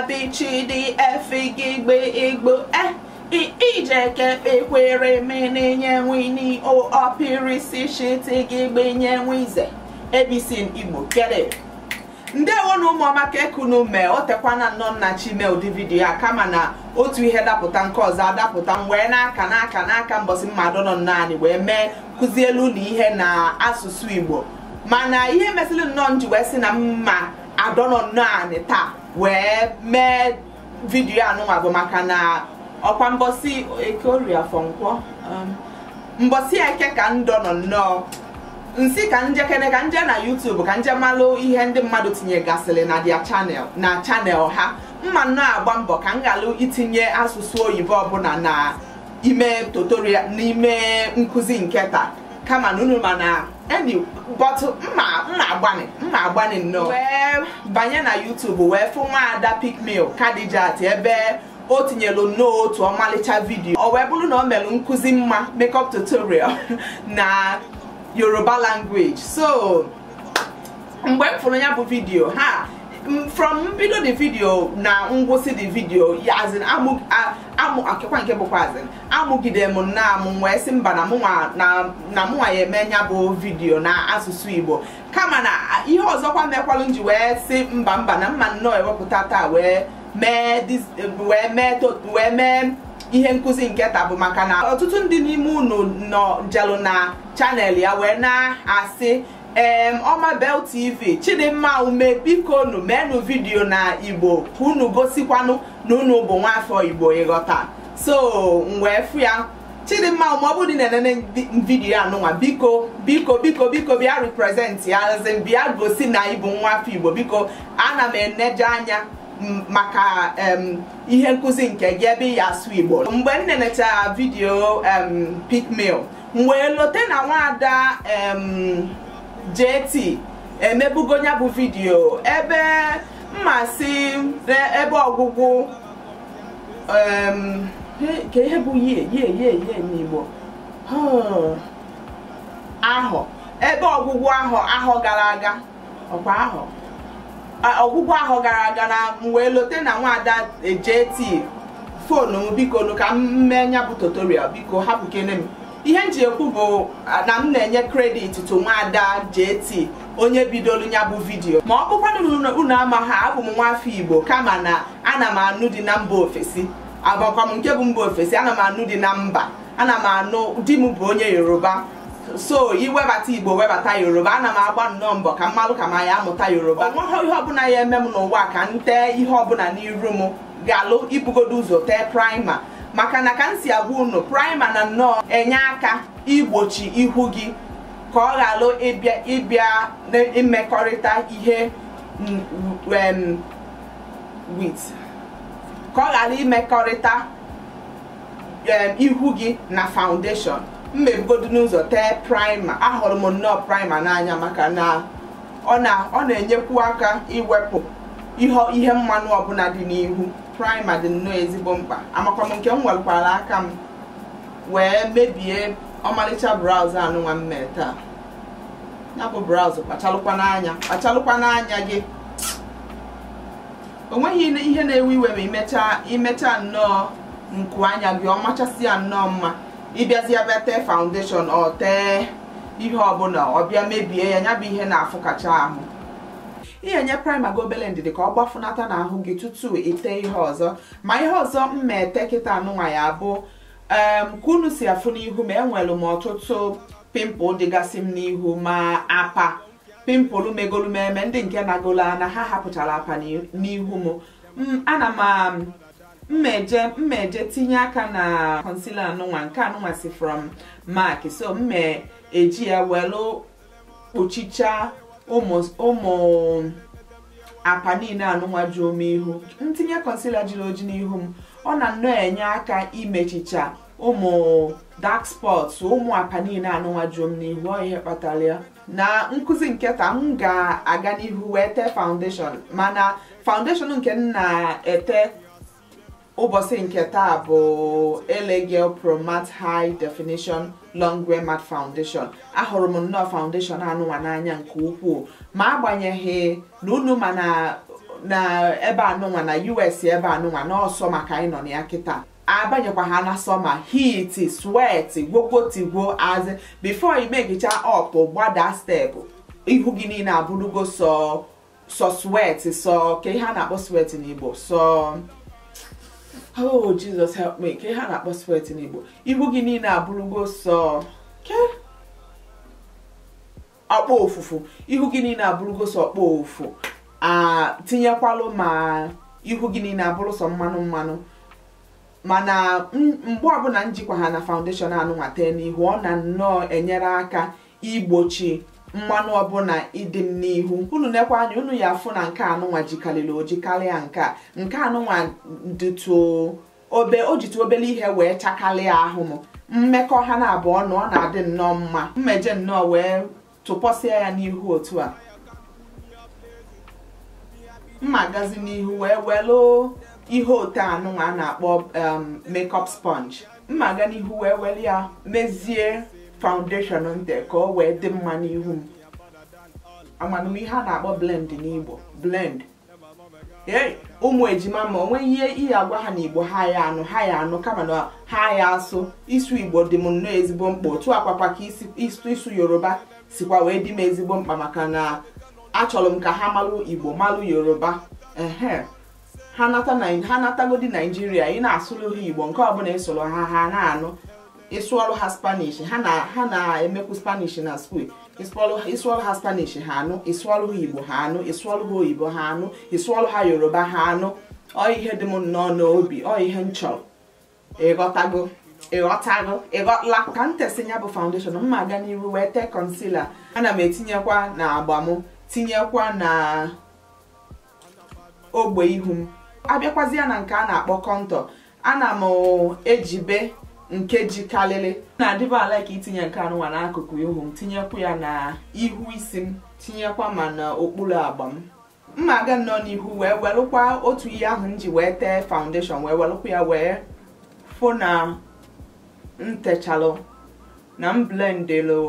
abichidiefiigbe igbo eh, iijeke kpekwere menenyenwini opirisichitigbenyenwize ebisin igbo kere ndewo na ụmụọma ka ekunu mee o tekwana nnọọ nna chime ụdị vidiyo a kama na otu ihe dapụta nke ọzọ adapụta m wee n'aka n'aka n'aka mbọsị mmadụ nọ naanị wee mee kụzielu ụlọ ihe na asụsụ igbo mana ihe mesịrị nnọọ nji wee si na mma adọnọ naanị taa wee mee vidiyo anụnwa bụ maka na ọkwa mbọsị eke orie afọ nkwọ um, eke ka ndọ nọ nnọọ nsi ka njekene ka nje na YouTube ka nje malụ ihe ndị mmadụ tinyegasịrị na dia chanel na chanel ha mma nnọọ agba mbọ ka m ghalụ itinye asụsụ oyibo ọbụla na ime tutorial n'ime nkụzi nke taa kama na unu ma na bọtụ mma mma agbanị mma agbanị nnọọ wee banye na YouTube wee fụ nwaada Picmail Kadijat ebe o tinyelu nnọọ otu ọmalịcha vidiyo o wee bụrụ na ọ mere nkụzi mma makeup tutorial na Yoruba language so mgbe m fụrụ ya bụ vidio ha Mm, from mbido the video na ngwụsị the video yazin amụ akịkwa nke bụkwazin amụgide m na amụ wee sị mba na mụnwa ya eme nya bụ vidio na asụsụ igbo kama na ihe ọzọkwa mekwalụ ji wee sị mba mba na mma nnọọ ewepụta taa wee mee ihe nkụzi nke taa bụ maka na ọtụtụ ndị n'ime unu nọ njelụ na chanel ya wee na-asị em Omabel TV Chidimma ume biko nu menu vidiyo na Igbo unu gosikwanụ na unu bụ nwafọ Igbo ịghọta so mgbe fụ ya Chidimma ume ọ bụrụ na enene vidiyo anụnwa biko biko biko biko bịa represent ya azị bịa gosi na ibu nwafọ Igbo biko ana m eneje anya maka ihe nkụzi nke gị ebe ya asụ Igbo mgbe m vidio vidiyo mail, mgbe lote na nwaada JT emebugo ya bụ vidiyo ebe mmasị ebe ọgwụgwụ ka ihe bụ ye ye ye ye n'Igbo ahọ ebe ọgwụgwụ ahọ ahọ gara aga ọkwa ahọ ọgwụgwụ ahọ gara aga na m lote na nwaada e, JT fonu m biko ka m mee ya bụ tutorial biko hapụkene m ihe m ji ekwu bụ na m na-enye kredit to nwaada JT onye bidolu ya bụ vidiyo ma ọ bụkwanụ unu amaghị abụ m nwaafọ Igbo kama na ana m anụ dị na mba ofesi abụkwa m nke bụ mba ofesi ana m anụ dị na mba ana m anụ di m bụ onye Yoruba so iwebata Igbo webata Yoruba ana m agba nnọọ mbọ ka mmalụ ka ma ya amụta Yoruba onweghị ihe ọbụla ya eme m n'ụwa ka m tee ihe ọbụla n'iru m galụ ibugodo ụzọ tee praịma maka na ka m si agwa unu praịma na nnọọ enye aka igbochi ihu gị ka ọ ghara ịbịa imekọrịta ihe wit ka ọ ghara imekọrịta ihu gị na foundation mmebugodu n'ụzọ tee praịma ahụrụ m nnọọ praịma n'anya maka na ọ na-enyekwu aka iwepụ ihe mmanụ ọbụla dị n'ihu praịma dị nnọọ ezigbo mkpa amakwa m nke m welụkwara aka m wee mebie ọmalịcha braụz anụnwa m taa ya bụ braụz kpachalụkwa n'anya kpachalụkwa n'anya gị o nweghị ihe na-ewe iwe ma imechaa imechaa nnọọ nku anya gị ọmachasị ya nnọọ mma ịbịazịa bịa tee faundeshọn ọ tee ihe ọbụla ọ bịa mebie ya nya bụ ihe na-afụkacha ahụ ịnyenye praịma gị obele ndidi ka ọ gbafunata n'ahụ gị tutu ite ihe ọzọ ma ihe ọzọ m kịta anụnwa ya bụ ka unu si afụ n'ihu ma enwere m ọtụtụ pimpụl dịgasị m n'ihu ma apa pimpụl megolu m eme ndị nke nagolo ana ha hapụchara apa n'ihu m ana m mmeje mmeje tinye aka na concealer anụnwa nke anụnwa si from mark so mme eji ya welu kpuchicha ụmụ apa niile anụnwa ju ome ihu ntinye concealer jiri oji n'ihu m ọ na nnọọ enye aka imechicha ụmụ dak ụmụ apanin niile anụnwa m n'ihu ọ ihe kpatara ya na nkụzi nketa m ga-aga n'ihu wee tee foundation mana foundation nke m na-ete ụbọchị nke bụ Ele promat High Definition long mad foundation ahụrụ m nnọọ foundation anụnwa n'anya nke ukwuu ma agbanyeghị na unu ma na ebe anụnwa na us ebe anụnwa n'ọsọ maka anyị nọ na ya kịta abanyekwa ha na sọma hit swet gwogwotigwo azị bifo imegicha ọp gbada stepụ ihu gị niile abụrụgo sọ sọ swet sọ ka ihe a na-akpọ swet n'igbo sọ oh Jesus help me ka ha na-akpọ sweat n'Igbo Ihu gị niile abụrụgo sọ ke ọkpọ ofufu ihu gị niile abụrụgo sọ ọkpọ ofu atinyekwalụ ma ihu gị niile abụrụ sọ mmanụ mmanụ mana mgbe ọbụla njikwa ha na faundeshọn anụnwa tee n'ihu ọ na nnọọ enyere aka igbochi mmanụ ọbụla ịdị m n'ihu unu nekwa anya unu ya afụ na nke anụnwa jikarịrị oji karịa nke a nke anụnwa dịtụ obe o jitu obere ihe wee chakalịa ahụ m mmekọ ha na abụọ na ọ na-adị nnọọ mma mmeje nnọọ wee tụpọsịa ya n'ihu otu a mma gazi n'ihu wee welụ ihe ote anụnwa a na-akpọ um, makeup sponge mma ga n'ihu wee were ya mezie foundation ntị ka ọ wee dị mma n'ihu m ihe a na-akpọ blend n'Igbo blend ee ụmụ ejima ma onweghị ihe ihe agwa ha n'Igbo ha ya anụ ha ya anụ kama na ha ya asụ isu Igbo dị m nnọọ ezigbo mkpa otu akwakwa ka isu Yoruba sikwa wee dị m ezigbo mkpa maka na achọrọ m ka ha malụ Igbo malụ Yoruba ehe ha n'atago dị natagodi Naijiria ị na-asụrụ ha Igbo nke ọbụla ịsụrụ ha ha na-anụ ịsụọrụ ha spanish ha na ha na-emekwu spanish na skuul ịsụọrụ ha spanish ha anụ ịsụọrụ ha igbo ha anụ ịsụọrụ ha oyibo ha anụ ịsụọrụ ha yoruba ha anụ ọ ihe dị m nnọọ n'obi ọ ihe m chọrọ ịghọtago e ịghọtago e ịghọtala e ka m tesi bụ foundation m ma aga n'iru wee tee concealer ana m etinyekwa na agba m tinyekwa na ogbe ihu m abịakwazi ya na nke a na-akpọ kọntọ ana m ejibe nke ji kalịlị. na-adịba ala ka itinye nke anụwa n'akụkụ ihu m tinyekwu ya na ihu isi m tinyekwa ma na okpuru agba m mma aga nnọọ n'ihu wee welụkwa otu ihe ahụ m ji wee tee foundation wee welụkwa ya wee fọ na ntechalụ na m blendịlụ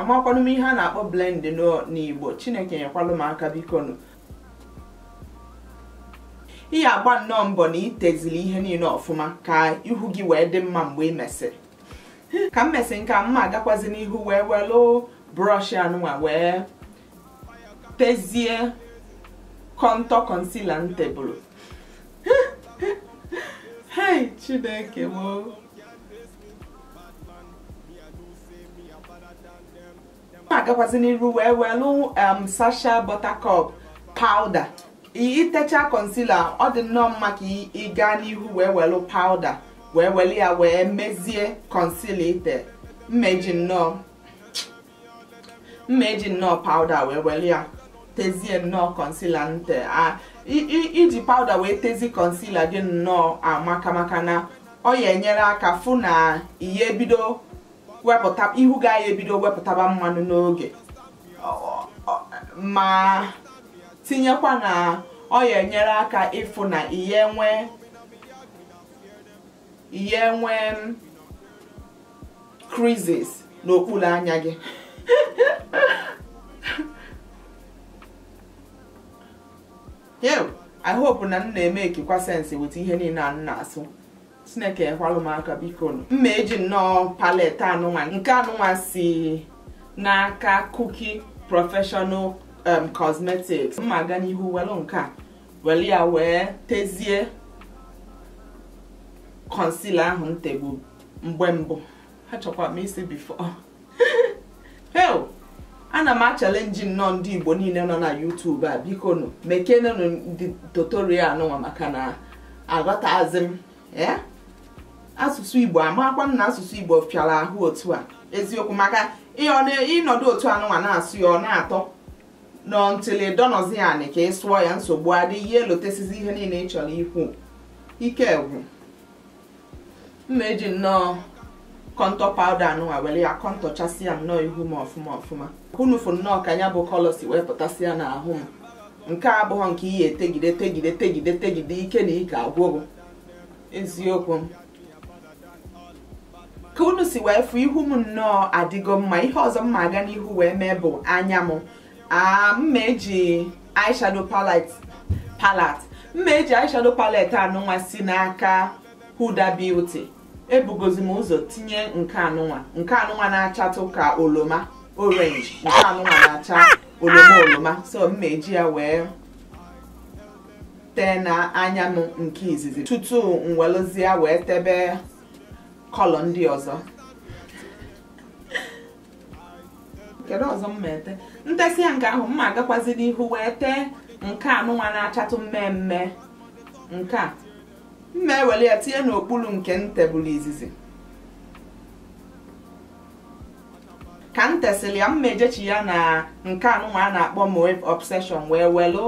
amakwanụ m ihe a na-akpọ blend n'igbo chineke nyekwalụ m aka bikonu ị ya agba nnọọ mbọ na ị teziri ihe niile ọfụma ka ihu gị wee dị mma mgbe ị mesịrị ka m mesịrị nke a mma agakwazị n'ihu wee welụ brọsh anụnwa wee tezie kọntọ kọnsila m tebụl hei chineke m agakwazị agakwazi n'iru wee welụ um, sasha buttercup powder itecha concealer ọ dị nnọọ mma ka ị gaa n'ihu wee welu powder wee weli ya wee mezie concealer ite mmeji nnọọ mmeji nnọọ powder wee weli ya tezie nnọọ concealer nte a iji powder wee tezi concealer gị nnọọ amaka maka na ọ ya enyere aka fụ na ihe ebido wepụta ihu gaa ya ebido wepụtaba mmanụ n'oge ma tinyekwa na ọ ya enyere aka ịfụ na ihe nwee ihe nwee creases n'okpuru anya gị I hope na m na-eme ekikwa sensi weta ihe niile a m na-asụ chineke ekwalụ m aka biko mma eji nnọọ palet anụnwa nke anụnwa si n'aka kuki professional Um, cosmetics mma aga n'ihu welụ nke a ya wee tezie concealer ahụ m mgbe mbụ ha chọkwa m isi before hell ana m achalenji nnọọ ndị igbo niile nọ na youtube a biko nụ mekenenụ ndị tutorial nwa maka na aghọtazi m eh? asụsụ igbo amakwa m na asụsụ igbo fịara ahụ otu a eziokwu maka ịnọdụ otu anụwa na-asụ ya ọ na-atọ nọ ntịlị dọnọzi anị ka ị sụọ ya nsogbu adịghị elotesizi ihe niile ị chọrọ ikwu ike egwu mma eji nnọọ kọntọ pawda anụnwa were ya kọntọchasịa m nnọọ ihu m ọfụma ọfụma fụ nnọọ ka ya bụ kọlọ si wee pụtasịa n'ahụ m nke abụọ nke ihe etegide tegide tegide tegide ike na ike agwụrụ eziokwu m ka unu si wee fụ ihu m nnọọ adịgo mma ihe ọzọ mma ma aga n'ihu wee mee bụ anya m m eji eyeshadow palette palette mma eji eyeshadow palette anụnwa si n'aka Huda Beauty ebugozi m ụzọ tinye nke anụnwa nke anụnwa na-achatụ ka oloma orange nke anụnwa na-acha oloma oloma so mma eji ya wee tee na anya m nke izizi tutu m ya wee tebe kọlọ ndị ọzọ kedu ọzọ m ete ntesị ya nke ahụ mma ma agakwazi n'ihu wee tee nke a nụnwa na-achatụ mmemme nke a mma ewere ya tinye n'okpuru nke m izizi ka m tesịrị ya mma ejechi ya na nke anụnwa a na-akpọ mowave obsession wee welu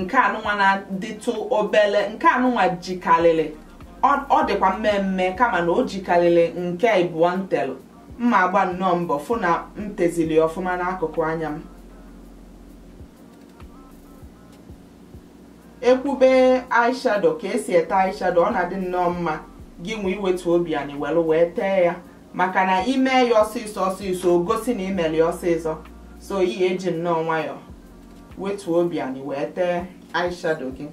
nke anụnwa na-adịtụ obele nke anụnwa jikarịrị ọ dịkwa mmemme kama na o jikarịrị nke ịbụọ ntelụ. mma agba nnọọ mbọ fụ na m tezili ọfụma n'akụkụ anya m ekwube aishado ka esi ete aishado ọ na-adị nnọọ mma gị nwe iwetu obi anyị welu wee tee ya maka na ime ya ọsịsọ ọsịsọ gosi na imeli ọsịsọ so ihe eji nnọọ nwayọ wetuo obi anyị wee tee aishado gị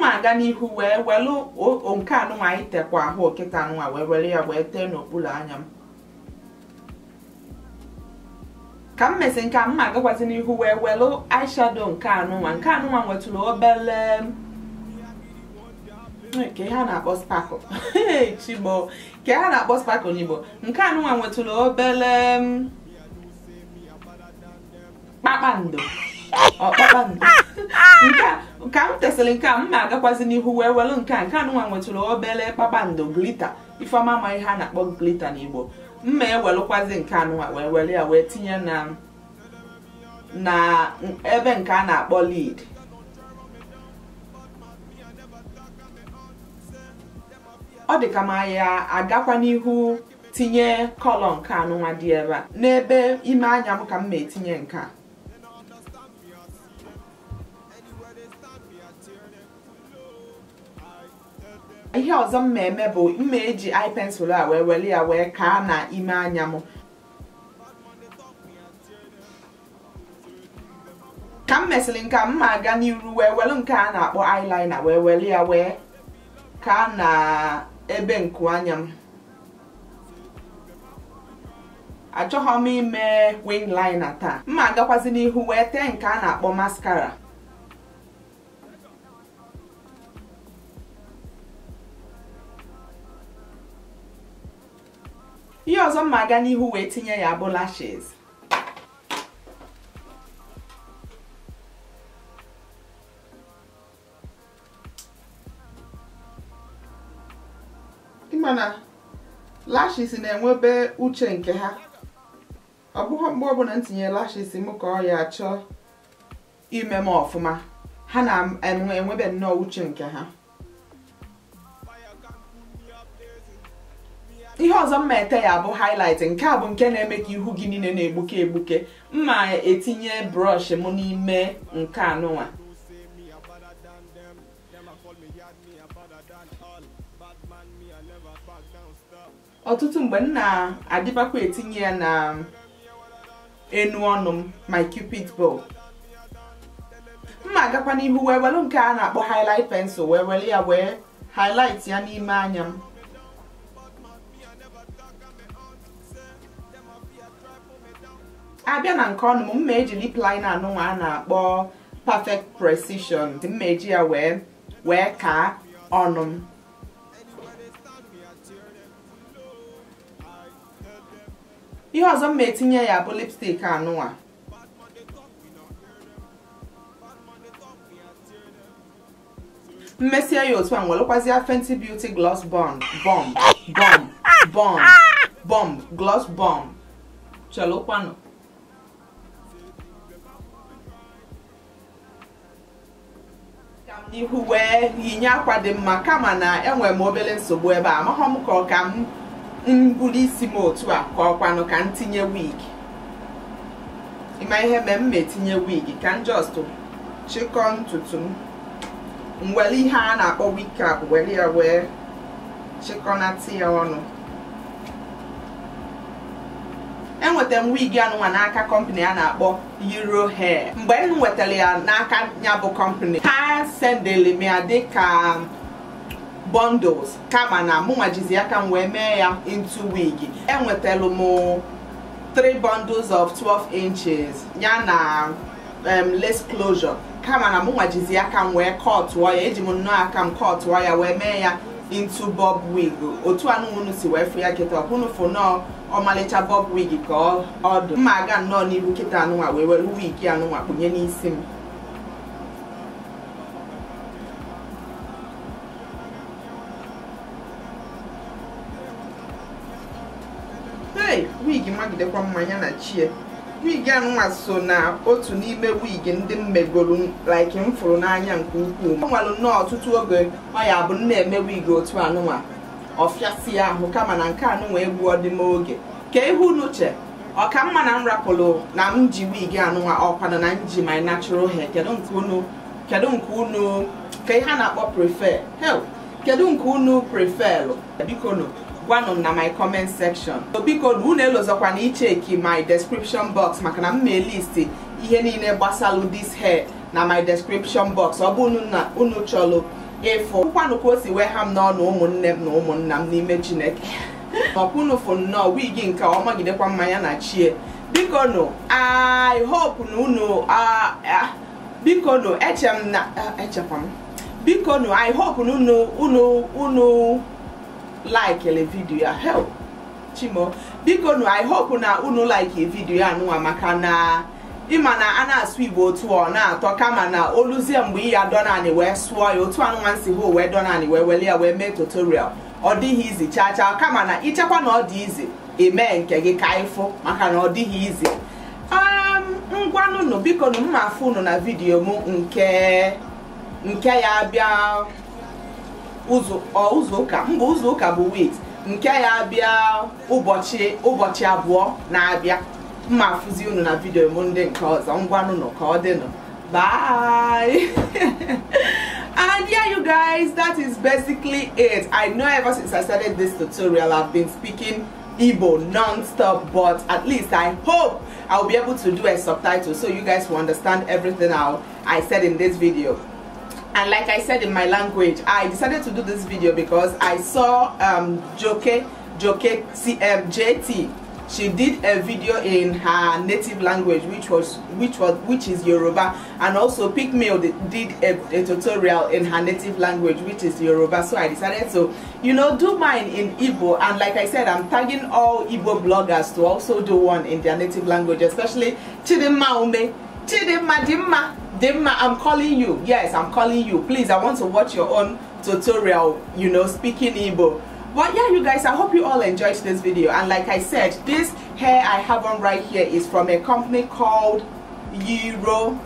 ma aga n'ihu wee welu nke anụnwa anyị tekwa ahụ okịta anụnwa wee were ya wee tee n'okpuru anya m ka m mesi nke a m agakwazị n'ihu wee welu eyeshadow nke anụnwa nke anụnwa nwetụrụ obele nke ha na-akpọ sparkle chigbo nke ha na-akpọ sparkle n'igbo nke anụnwa nwetụrụ obele kpakpando ọkpakpando ka m tesịrị nke a m agakwazị n'ihu wee welu nke a nke anụnwa nwetụrụ obele kpakpando glita ifeọma ma ihe a na-akpọ glita n'igbo mma ewelụkwazi nke anụnwa wee were ya wee tinye na na ebe nke a na-akpọ lid ọ dị ka ma ya agakwa n'ihu tinye kọlọ nke anụnwa dị ebe a n'ebe ime anya m ka m na-etinye nke ihe ọzọ m ma eme bụ mma eji eye a wee wee ya wee kaa na ime anya m ka m mesịrị nke a m ma aga n'iru wee welu nke a na-akpọ eyeliner wee weli ya wee kaa na ebe nku anya m achọghọ m ime wingliner taa m ma agakwazi n'ihu wee tee nke a na-akpọ maskara. ihe ọzọ mma aga n'ihu wee tinye ya bụ lashes mana lashes na-enwebe uche nke ha ọ bụghị mgbe ọbụla m tinye lashes m ka ọ ya achọ ime m ọfụma ha na-enwebe nnọọ uche nke ha ihe ọzọ mma ete ya bụ highlight nke a bụ nke na-eme ka ihu gị niile na-egbuke egbuke mma etinye brọsh m n'ime nke anụnwa ọtụtụ mgbe m na-adịbakwa etinye ya na enu ọnụ m my cupid bow mma agakwa n'ihu wee welu nke a na-akpọ highlight pensụl wee were ya wee highlight ya n'ime anya m abịa na nke ọnụ m mma eji lip liner anụnwa a na-akpọ perfect precision mma eji ya wee wee kaa ọnụ m ihe ọzọ mma etinye ya bụ lipstick anụnwa mmesie ya otu a nwelụkwazịa fenty beauty gloss bomb bomb bomb bomb bomb gloss bomb chelụkwanụ ihu wee yinye akwa dị mma kama na enwere m obere nsogbu ebe a amaghọ ka ọ ka m buru isi m otu a ka ọkwanụ ka m tinye wig ịma ihe mee m metinye wig ka m just chikọọ ntutu m m ihe a na-akpọ wig ka were ya wee chịkọnata ya ọnụ nweta m wig anụnwa n'aka kọmpani a na-akpọ Euro Hair mgbe m nwetara ya n'aka ya bụ kọmpani ha sendeli m ya dịka bundles kama na mụnwa aka m wee mee ya into wig enwetara m 3 bundles of 12 inches ya na lace closure kama na mụnwa aka m wee kọtụọ ya eji m nnọọ aka m kọtụọ ya wee mee ya into bob wig otu anụ si wee fụ ya kịta ọkwụnụ fụ nọọ ọmalịcha bob wig ka ọ dị mma aga nnọọ n'ihu kịta anụnwa wee were wig anụnwa kpụnye n'isi m hey wig magidekwa mmanya na chie wig anwa so na otu n'ime wig ndị m megoro like m fụrụ n'anya nke ukwuu ọ nwalụ nnọọ ọtụtụ oge ọ ya bụ na eme wig otu anụnwa ọfịasị ya ahụ kama na nke anụnwa egwu ọdịma oge ka ihu n'uche ọka mma na m rapụrụ na m ji wig anụnwa ọkwanụ na m ji my natural hair kedu nke unu kedu nke unu ka ihe a na-akpọ prefer hel kedu nke unu preferlụ biko gwanụ na my comment section so biko unu elozọkwana icheki my description box maka na m ma listi ihe niile gbasalụ this hair na my description box ọ bụ na unu chọrọ ịfụ kwanụ ka o si wee ha m n'ọnụ ụmụnne m na ụmụnna m n'ime chineke ọkwunu nnọọ wigi nke ọmagidekwa mmanya na chie biko nụ i hope na unu biko nụ eche m na echekwa m biko nụ i hope na unu unu unu laikele vidiyo ya help chimo biko nu i hope na unu like e vidiyo ya nụnwa maka na ịma na a na-asụ igbo otu ọ na-atọ kama na oluzie mgbe iya donani wee sụọ ya otu anụnwa si ho wee donani wee weli ya wee mee tutorial ọ dịghị izi chaa chaa kama na ịchekwa na ọ dị izi emee nke gị ka ịfụ maka na ọ dịghị izi um, ngwanụnụ biko m mma afụ unu na vidiyo m nke nke ya bịa ụzọ ụka mba ụzọ ụka bụ wit nke ya bịa ụbọchị ụbọchị abụọ na-abịa mma afụzi unu na vidio m ndị nke ọzọ ngwanụ nọ ka ọ dịnụ bye and yeah you guys that is basically it i know ever since i started this tutorial i've been speaking Igbo non-stop but at least I hope I'll be able to do a subtitle so you guys will understand everything I, I said in this video and like I said in my language I decided to do this video because I saw um, Joke Joke CMJT um, she did a video in her native language which was which was which is Yoruba and also Pigmail did a, a, tutorial in her native language which is Yoruba so I decided to you know do mine in Igbo and like I said I'm tagging all Igbo bloggers to also do one in their native language especially Chidimma Ume Chidimma Dimma Dimma, I'm calling you. Yes, I'm calling you. Please, I want to watch your own tutorial, you know, speaking Igbo. But yeah, you guys, I hope you all enjoyed this video. And like I said, this hair I have on right here is from a company called Euro.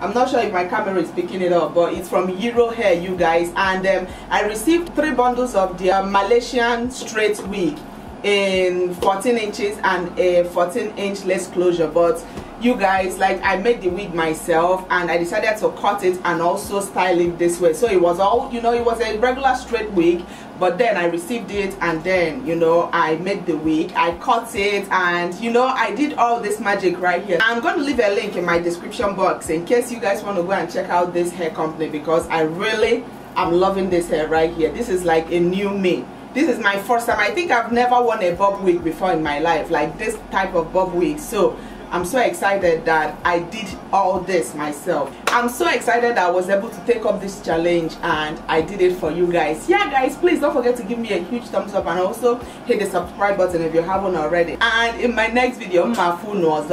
I'm not sure if my camera is picking it up, but it's from Euro Hair, you guys. And um, I received three bundles of their Malaysian straight wig in 14 inches and a 14 inch less closure. But you guys like i made the wig myself and i decided to cut it and also style it this way so it was all you know it was a regular straight wig but then i received it and then you know i made the wig i cut it and you know i did all this magic right here i'm going to leave a link in my description box in case you guys want to go and check out this hair company because i really am loving this hair right here this is like a new me this is my first time i think i've never worn a bob wig before in my life like this type of bob wig so I'm so excited that I did all this myself. I'm so excited that I was able to take up this challenge and I did it for you guys. Yeah guys, please don't forget to give me a huge thumbs up and also hit the subscribe button if you haven't already. And in my next video, my full nose.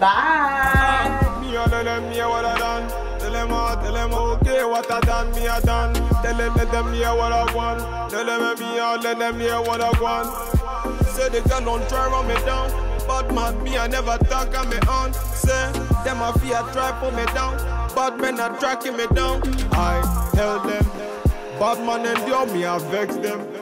Bye! Bad man, me, I never talk on me own. Say, them a fear try pull me down. Bad men are tracking me down. I held them. Bad man endure me, I vex them.